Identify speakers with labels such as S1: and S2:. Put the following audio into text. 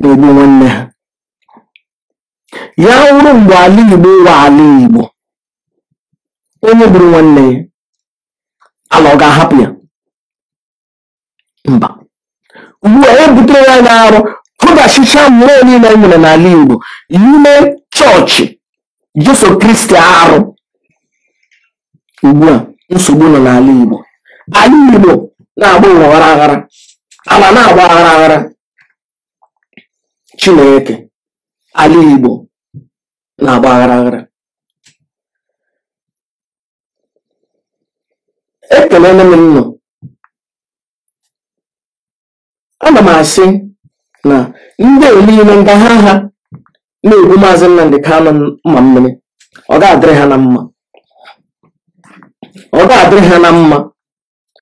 S1: na-egbu nwanne ha ya wụrụ mgbe ala Igbo wa ala Igbo onye gburu nwanne ya ala ọ ga-ahapụ ya mba
S2: ugbu
S3: a
S4: ebutere ya na arụ pụdachicha mmụọ niile e nwere n'ala Igbo ime
S5: chọọchị Jesu Kristi arụ ugbu a nsogbu nọ n'ala Igbo ala Igbo na-agba ụwa aghara aghara ala na-agba aghara
S1: aghara Chineke ala Igbo na-agba aghara aghara ekelele m nnụ
S6: ana
S7: m
S8: asị na ndị niile nga ha ha na-egbu maazị Nnamdị kano mma mmiri ọ ga-adịrị ha na mma ọ
S9: ga-adịrị ha na mma